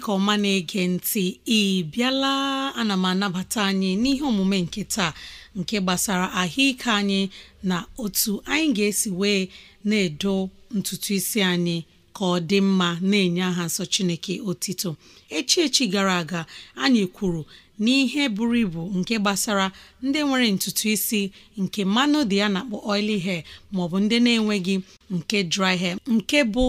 ka ọma na-ege ntị ị bịala ana m anabata anyị n'ihe omume nke taa nke gbasara ahụike anyị na otu anyị ga-esi wee na-edo ntutu isi anyị ka ọ dị mma na-enye aha nsọ chineke otito echi echi gara aga anyị kwuru n'ihe buru ibu nke gbasara ndị nwere ntutu isi nke mmanụ dị ya na-akpọ oily hair maọbụ ndị na-enweghị nke dry hair nke bụ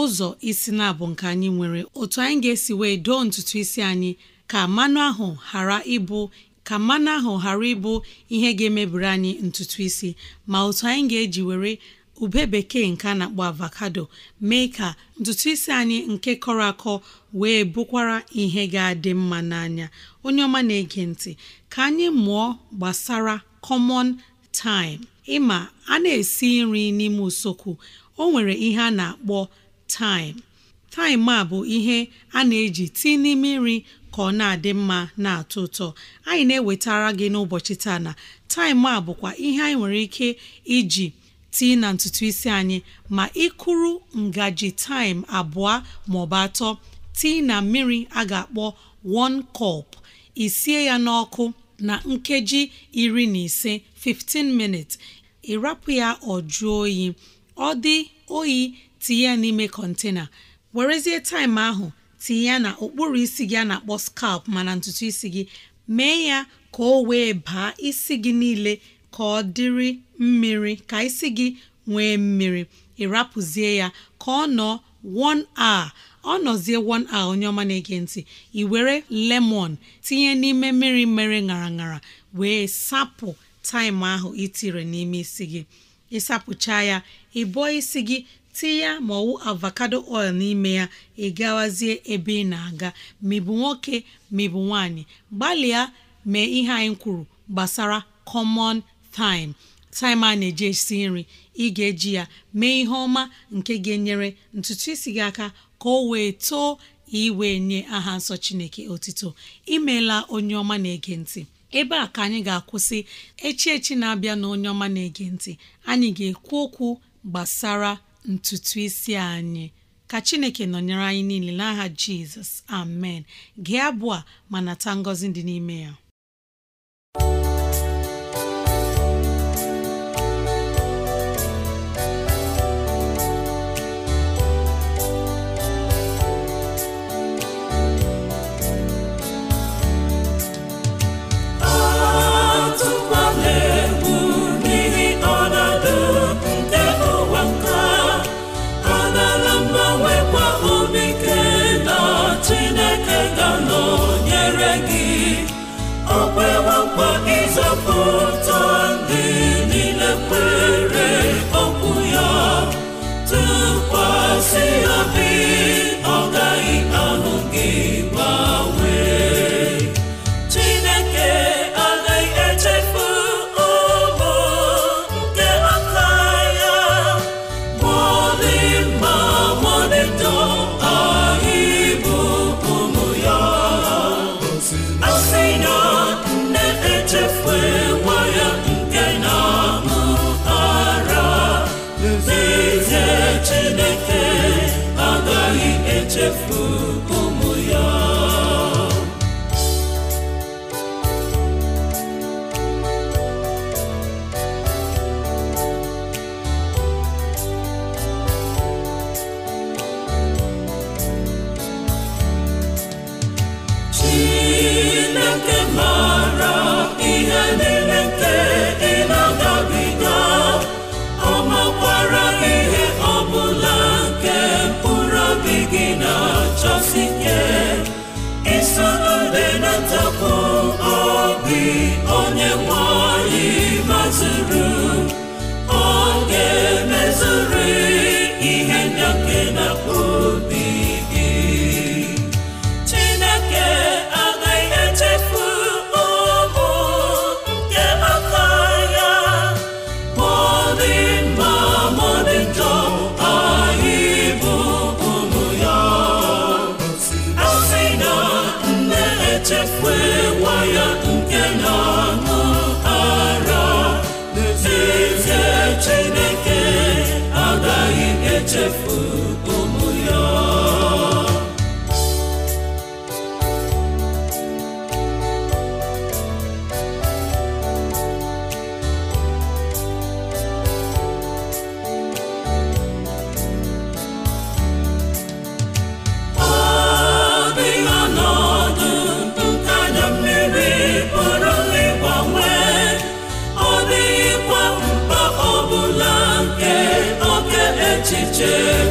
ụzọ isi na-abụ nke anyị nwere otu anyị ga-esi wee doo ntutu isi anyị ka mmanụ ahụ ghara ịbụ ka mmanụ ahụ ghara ịbụ ihe ga-emebiri anyị ntutu isi ma otu anyị ga-eji were ube bekee nke a na-akpọ avocado mee ka ntutu isi anyị nke kọrọ akọ wee bụkwara ihe ga-adị mma n'anya onye ọma na-ege ntị ka anyị mụọ gbasara kọmọn taim ịma a na-esi nri n'ime usekwu o nwere ihe a na-akpọ taịm taịm a bụ ihe a na-eji tii n'ime nri ka ọ na-adị mma na-atọ ụtọ anyị na-ewetara gị n'ụbọchị taa na taịm a bụkwa ihe anyị nwere ike iji tii na ntutu isi anyị ma ịkụrụ ngaji taịm abụọ bụ atọ tii na mmiri a ga-akpọ one kọp isie ya n'ọkụ na nkeji iri na ise 15 minutes ịrapụ ya ọ oyi ọ dị oyi tinye ya n'ime kọntena werezie taịm ahụ tinye ya na okpuru isi gị a na-akpọ skap mana ntutu isi gị mee ya ka o wee baa isi gị niile ka ọ dịrị mmiri ka isi gị nwee mmiri ịrapụzie ya ka ọ nọ one hour ọ nọzie one hour onye ọma na-ege ntị i were lemon tinye n'ime mmiri mere ṅara ṅara wee sapụ taịm ahụ itire n'ime isi gị ịsapụcha ya ịbụọ isi gị tinye ya ma ọwụ avocado oil n'ime ya ị gawazie ebe ị na-aga ma ị bụ nwoke ma ị bụ nwaanyị gbalịa mee ihe anyị kwuru gbasara common thyme thyme a na-eji esi nri ị ga-eji ya mee ihe ọma nke ga-enyere ntutu isi gị aka ka o wee too iwee nye aha nsọ chineke otito imeela onye ọma na-ege ntị ebe a ka anyị ga-akwụsị echi echi na-abịa na onye ọma na-ege ntị anyị ga-ekwu okwu gbasara ntutu isi anyị ka chineke nọnyere anyị niile n'aha jizọs amen gị abụọ ma nata ngọzi dị n'ime ya akpọ ịzọpụta onye nwanyị anyị mazuru się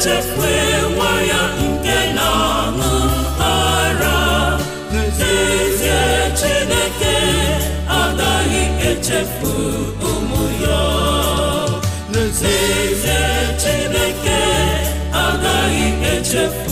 echefue nwaya nke na-aṅụ ara n'ezie Chineke agaghị echefu ụmụ ya n'ezie Chineke agaghị echefu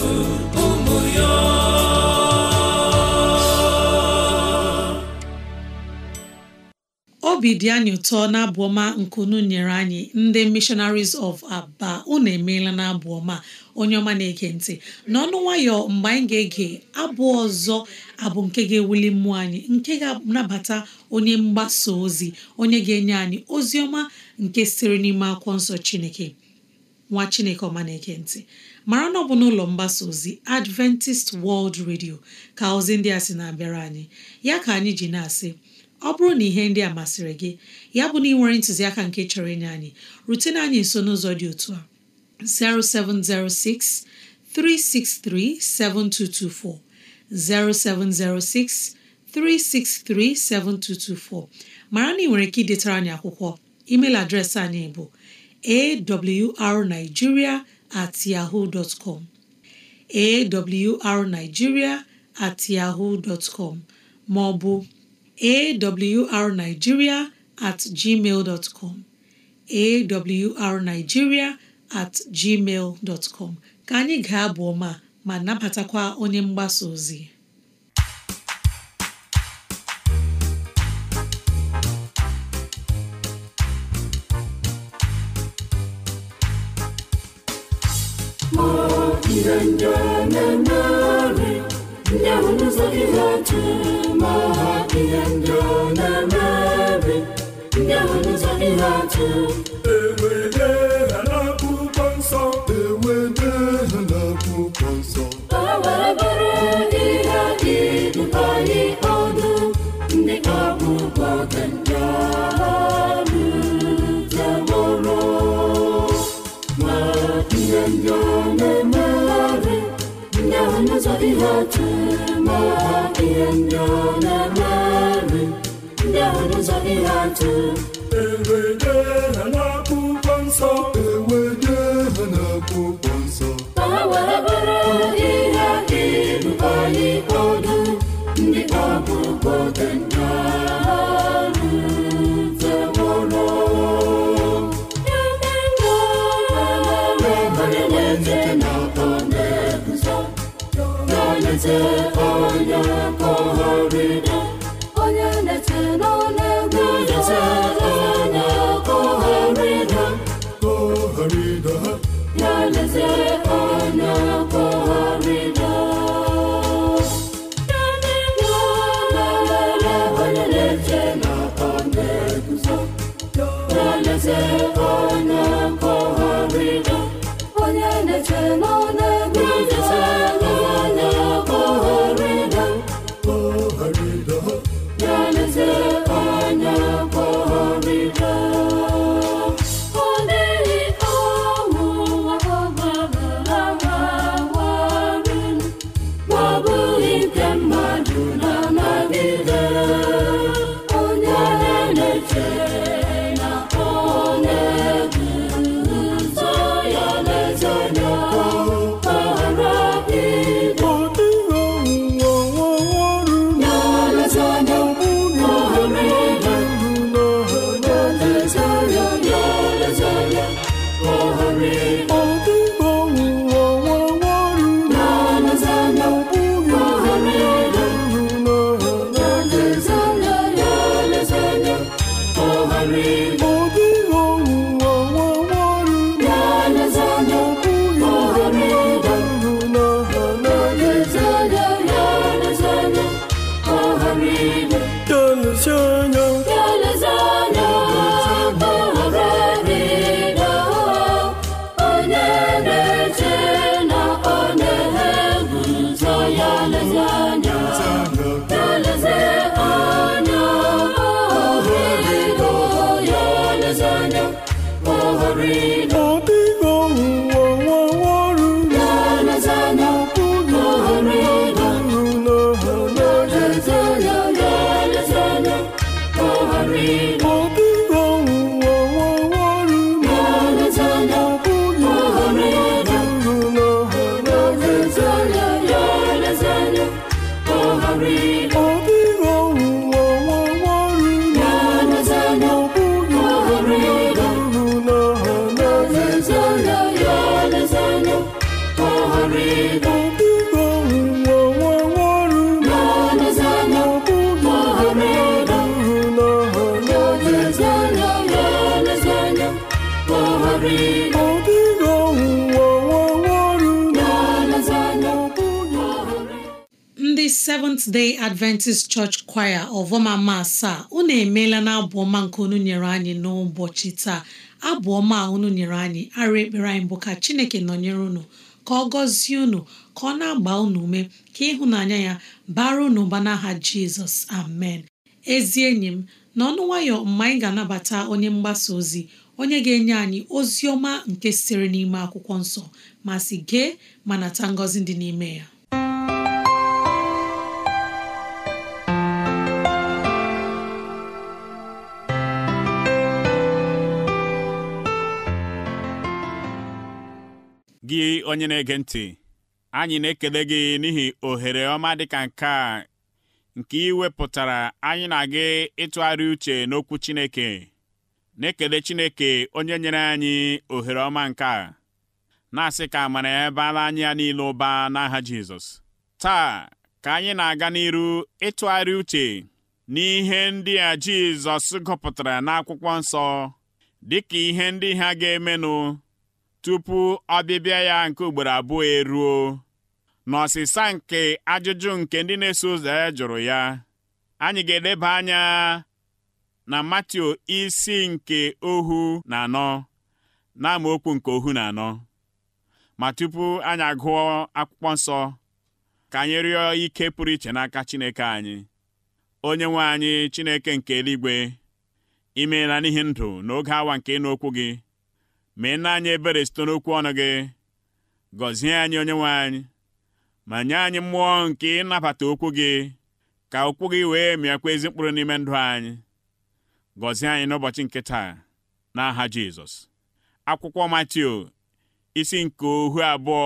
obi dị anyị ụtọ na abụọma ọma nke unu nyere anyị ndị mishonaris of Aba unu emeela na abụ ọma onye ọma na-ege ntị n'ọnụ nwayọ mgbe anyị ga-ege abụ ọzọ abụ nke ga-ewuli mmụọ anyị nke ga-anabata onye mgbasa ozi onye ga-enye anyị ozi ọma nke siri n'ime akwụkwọ nsọ Chineke nwa Chineke ọma na-ege ntị mara na ọ bụ n'ụlọ mgbasa ozi Adventist World redio ka ozi ndị a sị na-abịara anyị ya ka anyị ji na-asị ọ bụrụ na ihe ndị a masịrị gị ya bụ na ị nwere ntụziaka nke chọrọ inye anyị rutena anyị nso n'ụzọ dị otu a 0706 363 7224 0706 363 7224 mara na ị nwere ike idetara anyị akwụkwọ email adreesị anyị bụ awrnigeria at at ma ọ bụ awrnigeria at gmail dot com awrnigeria at gmail dot com ka anyị gaa abụ ọma ma nabatakwa onye mgbasa ozi ndị ọ na ndị Yahweh n'ụzọ only right. eze onye mkpọgharị ndị seventh day adventist church choir ọvọmama asaa unu emeela na abụọma ọma nke unu nyere anyị n'ụbọchị taa abụ ọma unu nyere anyị arụ ekpere anyị bụ ka chineke nọnyere unu ka ọ gọzie unu ka ọ na-agba unu ume ka ịhụnanya ya bara unu ụba n'aha jizọs amen ezi enyi m n'ọnụ nwayọ mgbe anyị ga-anabata onye mgbasa ozi onye ga-enye anyị ozi ọma nke sitere n'ime akwụkwọ nsọ ma si gee ma nata ngọzi dị n'ime ya gị onye na-ege ntị anyị na-ekele gị n'ihi ohere ọma dịka nke a nke ị wepụtara anyị na gị ịtụgharị uche n'okwu Chineke na-ekele Chineke onye nyere anyị ohere ọma nke a na-asị ka amara ya baala anyị ya niile ụba n'aha Jizọs taa ka anyị na-aga n'iru ịtụgharị uche n'ihe ndị a Jizọs gụpụtara n'akwụkwọ nsọ dịka ihe ndị ha ga-emenụ tupu ọbịbịa ya nke ugboro abụọ eruo n'ọsịsa nke ajụjụ nke ndị na-eso ụzọ ya jụrụ ya anyị ga-eleba anya na Matio isi nke ohu na anọ na amaokwu nke ohu na anọ ma tupu anyị agụọ akwụkwọ nsọ ka anyị rịọ ike pụrụ iche n'aka Chineke anyị onye nwe anyị Chineke nke eluigwe imeela n'ihi ndụ n'oge awa nke n'okwu gị mee nna anyị ebere site n'okwu ọnụ gị gọzie anyị onye nwe anyị ma nye anyị mmụọ nke ịnabata okwu gị ka okwu gị wee mịakwa ezi mkpụrụ n'ime ndụ anyị gọzie anyị n'ụbọchị nke taa n'aha Jizọs akwụkwọ Matiu isi nke ohu abụọ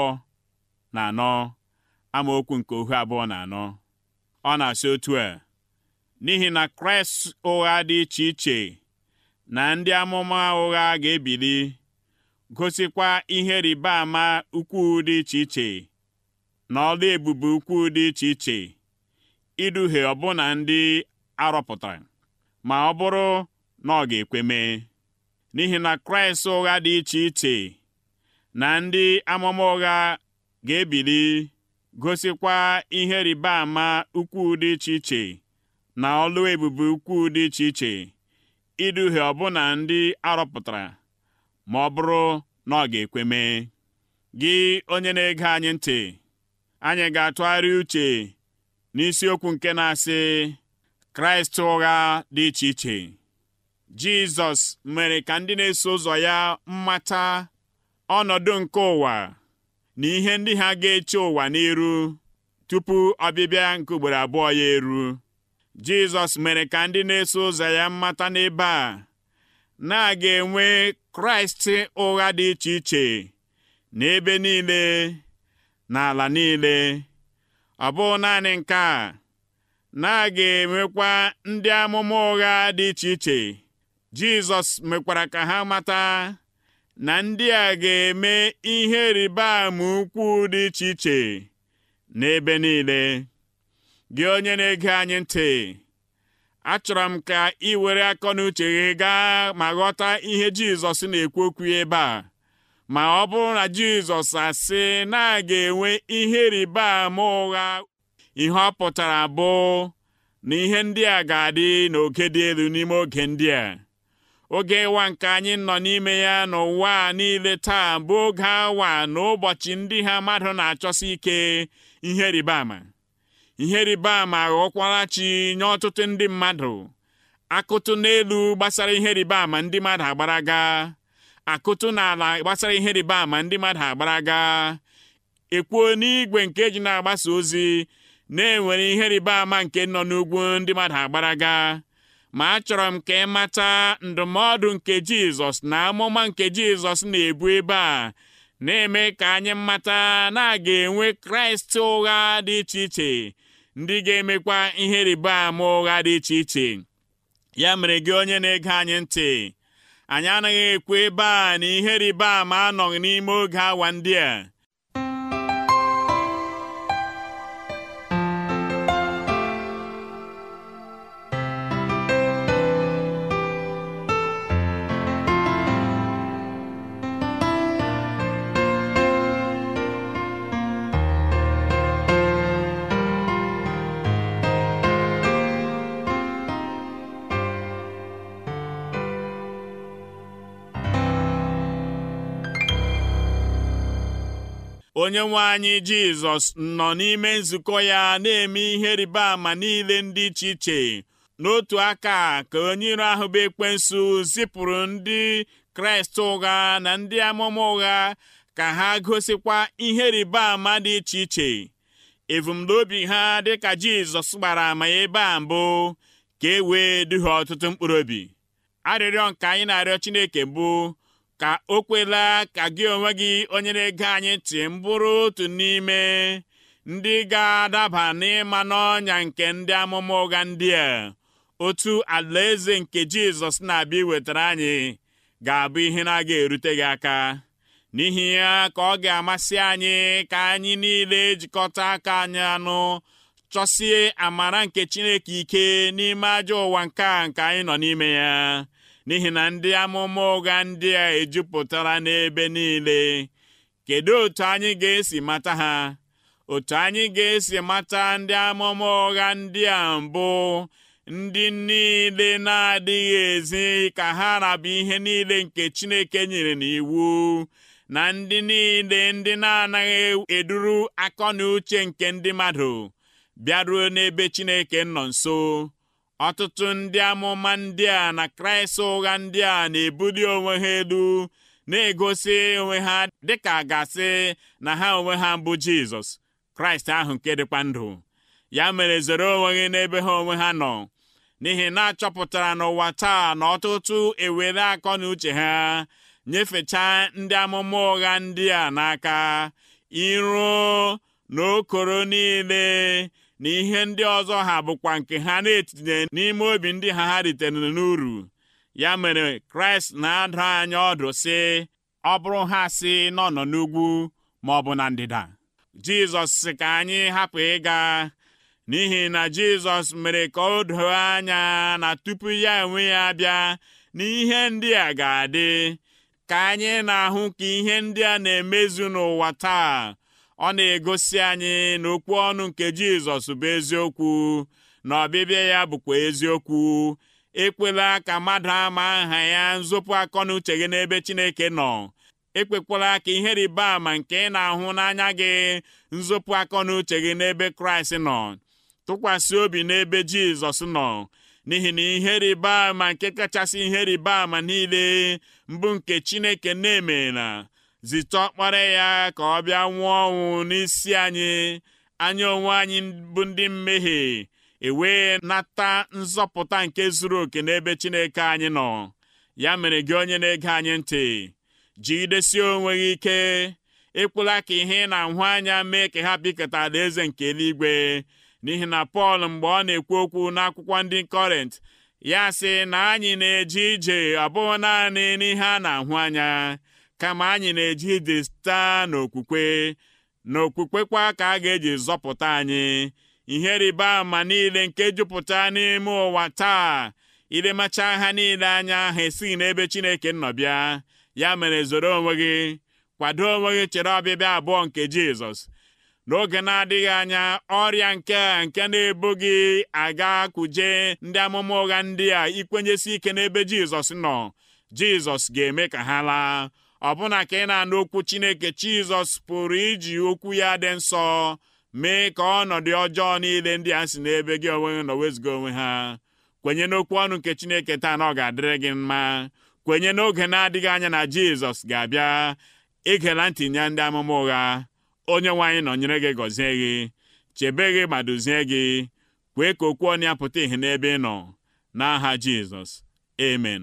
na anọ amaokwu nke ohu abụọ na anọ ọ na-asị otu a n'ihi na Kraịst ụgha dị iche iche na ndị amụma ụgha ga-ebili gosikwa ihe rịba ama ukwu dị iche iche na ọla ebube ukwu dị iche iche iduhie ọbụna ndị arọpụtara ma ọ bụrụ na ọ ga ekweme n'ihi na Kraịst ụgha dị iche iche na ndị amụma ụgha ga-ebili gosikwa ihe rịba ama ukwu dị iche iche na ọlụ ebube ukwuu dị iche iche iduhie ọbụna ndị arọpụtara ma ọ bụrụ na ọ ga ekweme gị onye na-ege anyị ntị anyị ga-atụgharị uche n'isiokwu nke na-asị kraịst ụgha dị iche iche jizọs mere ka ndị na-eso ụzọ ya mmata ọnọdụ nke ụwa na ihe ndị ha ga-eche ụwa n'iru tupu ọbịbịa nke ugboro abụọ ya eru jizọs mere ka ndị na-eso ụzọ ya mmata n'ebe a na ga enwe kraịst ụgha dị iche iche n'ebe niile n'ala niile ọ bụghị naanị nke a na a ga-emekwa ndị amụma ụgha dị iche iche jizọs mekwara ka ha mata na ndị a ga-eme ihe rịba ama ukwuu dị iche iche n'ebe niile gị onye na-ege anyị ntị achọrọ m ka ị were akọ n'uche gị gaa ma ghọta ihe jizọs na-ekwu okwu ebe a ma ọ bụrụ na jizọs asị na a enwe ihe rịba ụgha ihe ọ pụtara bụ na ihe ndị a ga-adị n'oke dị elu n'ime oge ndị a oge ịwa nke anyị nọ n'ime ya n'ụwa niile taa bụ oge awa na ụbọchị ndị ha mmadụ na-achọsi ike ihe rịba ama ihe rịba ama ghọọkwara chi nye ọtụtụ ndị mmadụ akụtụ n'elu gbasara ihe rịba ama ndị mmadụ agbaraga akụtụ n'ala gbasara ihe rịba ama ndị mmadụ agbaraga ekwuo n'igwe nke eji na-agbasa ozi na-enwere ihe rịba ama nke nọ n'ugwu ndị mmadụ agbara agbaraga ma achọrọ m ka ị mata ndụmọdụ nke Jizọs na amụma nke Jizọs na-ebu ebe a na-eme ka anyị mata na a ga-enwe Kraịst ụgha dị iche iche ndị ga-emekwa ihe rịba ama ụgha dị iche iche ya mere gị onye na-ege anyị ntị anyị anaghị ekwu ebe a na ihe rịba ama anọghị n'ime oge awa ndị a onye nwe anyị Jizọs nọ n'ime nzukọ ya na-eme ihe rịba ama niile ndị iche iche n'otu aka ka onye iro ahụ bụ ekwensu zipụrụ ndị Kraịst ụgha na ndị amụma ụgha ka ha gosikwa ihe rịba ama dị iche iche ebumnobi ha dịka Jizọs gbara ama ebe a mbụ ka e wee duhie ọtụtụ mkpụrụ obi arịrịọ nke anyị na-arịọ Chineke mbụ ka o kwela ka gị onwe gị onye na-ege anyị tị mbụrụ otu n'ime ndị ga-adaba n'ịma n'ọnya nke ndị amụma ụgha ndị a otu alaeze nke jizọs na-abịa iwetara anyị ga-abụ ihe na-aga erute gị aka n'ihi ya ka ọ ga-amasị anyị ka anyị niile jikọta aka anyị anụ chọsie amara nke chineke ike n'ime ajọ ụwa nke a nke anyị nọ n'ime ya n'ihi na ndị amụma ụgha ndị a ejupụtara n'ebe niile kedu otu anyị ga-esi mata ha otu anyị ga-esi mata ndị amụma ụgha ndị a mbụ ndị niile na-adịghị ezi ka ha rabụ ihe niile nke Chineke nyere n'iwu na ndị niile ndị na-anaghị eduru akọ na uche nke ndị mmadụ bịaruo n'ebe Chineke nọ nso Ọtụtụ ndị amụma ndị a na Kraịst ụgha ndị a na-ebuli onwe ha elu na-egosi onwe ha dịka gasị na ha onwe ha bụ Jizọs Kraịst ahụ nke dịkwa ndụ ya mere zere onwe gị n'ebe ha onwe ha nọ n'ihi na achọpụtara n'ụwa taa na ọtụtụ ewere akọ na uche ha nyefechaa ndị amụma ụgha ndị a n'aka iruo n'okoro niile na ihe ndị ọzọ ha bụkwa nke ha na-etinye n'ime obi ndị ha ha ritere n'uru ya mere kraịst na-adụ anya ọdụ sị ọ bụrụ ha sị nọ nọ n'ugwu ma ọ bụ na ndịda jizọs si ka anyị hapụ ịga n'ihi na jizọs mere ka o doo anya na tupu ya enwe ya bịa na ihe ndị a ga-adị ka anyị na-ahụ ka ihe ndị a na-emezu n'ụwa taa ọ na-egosi anyị na okwu ọnụ nke Jizọs bụ eziokwu na ọbịbịa ya bụkwa eziokwu ekwela ka mmadụ ama aha ya nzọpụ akọ na uche gị n'ebe Chineke nọ ekwekwala ka ihe rịba ama nke ị na-ahụ n'anya gị nzọpụ akọ na uche gị n'ebe Kraịst nọ tụkwasị obi n'ebe Jizọs nọ n'ihi na ihe rịba ama nke kachasị ihe rịba ama niile mbụ nke Chineke na-emela zite ọkpara ya ka ọ bịa nwụọ ọnwụ n'isi anyị anya onwe anyị bụ ndị mmehie ewee nata nzọpụta nke zuru oke n'ebe Chineke anyị nọ ya mere gị onye na-ege anyị ntị jigidesie onwe gị ike ịkwụla ka ihe ị na-ahụ anya mee ka ha bikọta alaeze nke eluigwe n'ihi na Pọl mgbe ọ na-ekwu okwu n'akwụkwọ ndị kọrent ya sị na anyị na-eje ije ọ bụghị naanị n'ihe a na-ahụ anya kama anyị na-eji ije site n'okwukwe na kwa ka a ga-eji zọpụta anyị ihe rịba ama niile nke jupụta n'ime ụwa taa ilemacha ha niile anya ha esighị n'ebe Chineke nọ bịa ya mere zoro onwe gị kwado onwe gị chere ọbịbịa abụọ nke Jizọs n'oge na-adịghị anya ọrịa nke a nke na-ebu gị aga kuje ndị amụma ụgha ndị a ikwenyesi ike n'ebe Jizọs nọ Jizọs ga-eme ka ha laa ọbụna ka ị na-anụ okwu Chineke Jizọs pụrụ iji okwu ya dị nsọ mee ka ọnọdụ ọjọọ niile ndị a si n'ebe gị onwe nọ wezuga onwe ha kwenye n'okwu ọnụ nke Chineke taa na ọ ga-adịrị gị mma kwenye n'oge na-adịghị anya na Jizọs ga-abịa igela ntị nye ndị amụma ụgha onye nwe anyị nọnyere gị gọzie gị chebe gị ma duzie gị kwee ka okwu ọnụ ya pụta ìhè n'ebe ị nọ n'aha Jizọs amen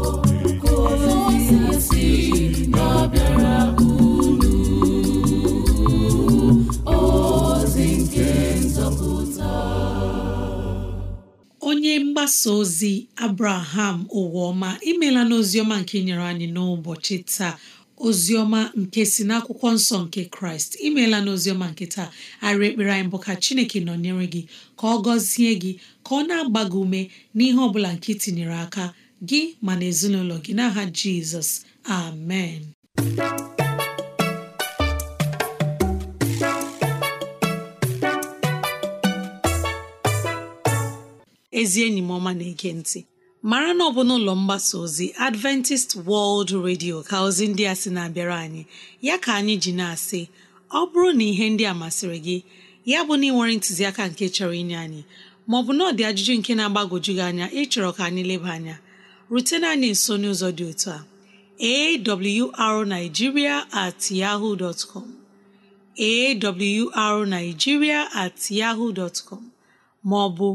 mgbasa ozi abraham ụwaọma imela n'oziọma nke nyere anyị n'ụbọchị taa oziọma nke si n'akwụkwọ nsọ nke kraịst imeela n'oziọma nke taa arị ekpere anyị bụ ka chineke nọnyere gị ka ọ gọzie gị ka ọ na-agba gị ume n'ihe ọ bụla nke tinyere aka gị ma na ezinụlọ gị n'aha jizọs amen ezi enyi m ọma na-ege ntị mara na ọ bụ n'ụlọ mgbasa ozi adventist world radio ka ozi ndị a sị na-abịara anyị ya ka anyị ji na-asị ọ bụrụ na ihe ndị a masịrị gị ya bụ na ị nwere ntụziaka nke chọrọ inye anyị maọbụ na ọdị ajụjụ nke na-agbagwoju gị anya ịchọrọ ka anyị leba anya rutena anyị nso n'ụzọ dị otu a awrnigeria at yahoo dot com awrnigeria at maọbụ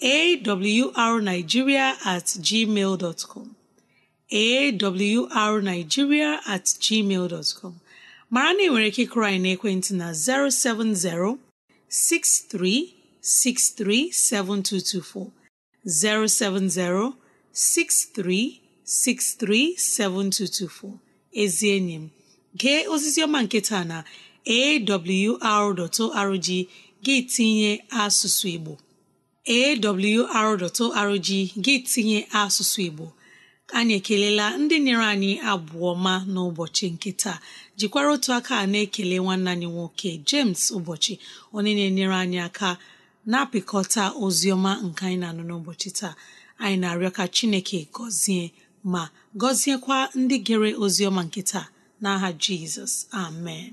awrnigeria at com awrnigeria at com mara na ị nwere ike ịkụrụ anyị n'ekwentị na 070 6363 7224 070 6363 7224 ezi enyi m gee osisi ọma nke taa na awr.org gị tinye asụsụ Igbo awr.org gị tinye asụsụ Igbo anyị ekelela ndị nyere anyị abụọ ma n'ụbọchị nke taa jikwara otu aka na-ekele nwanne anyị nwoke James ụbọchị onye na-enyere anyị aka na-apịkọta oziọma ọma nke anyị na-anụ n'ụbọchị taa anyị na-arịọ ka Chineke gọzie ma gọziekwa ndị gere oziọma ọma nke taa n'aha Jizọs amen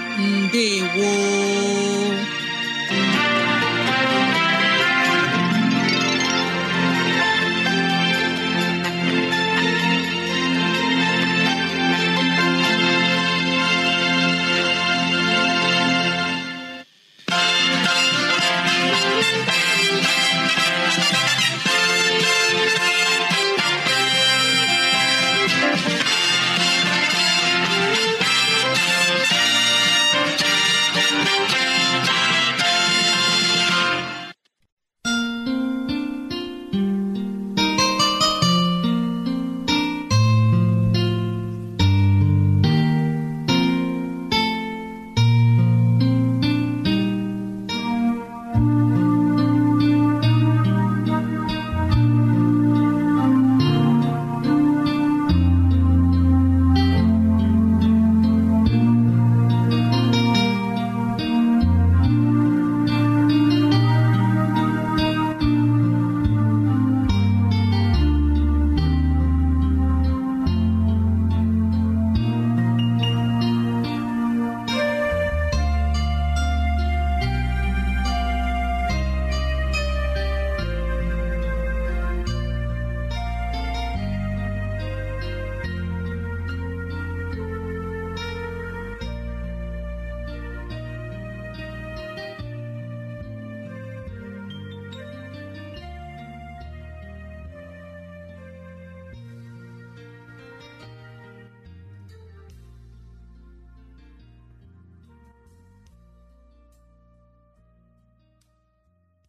ndewo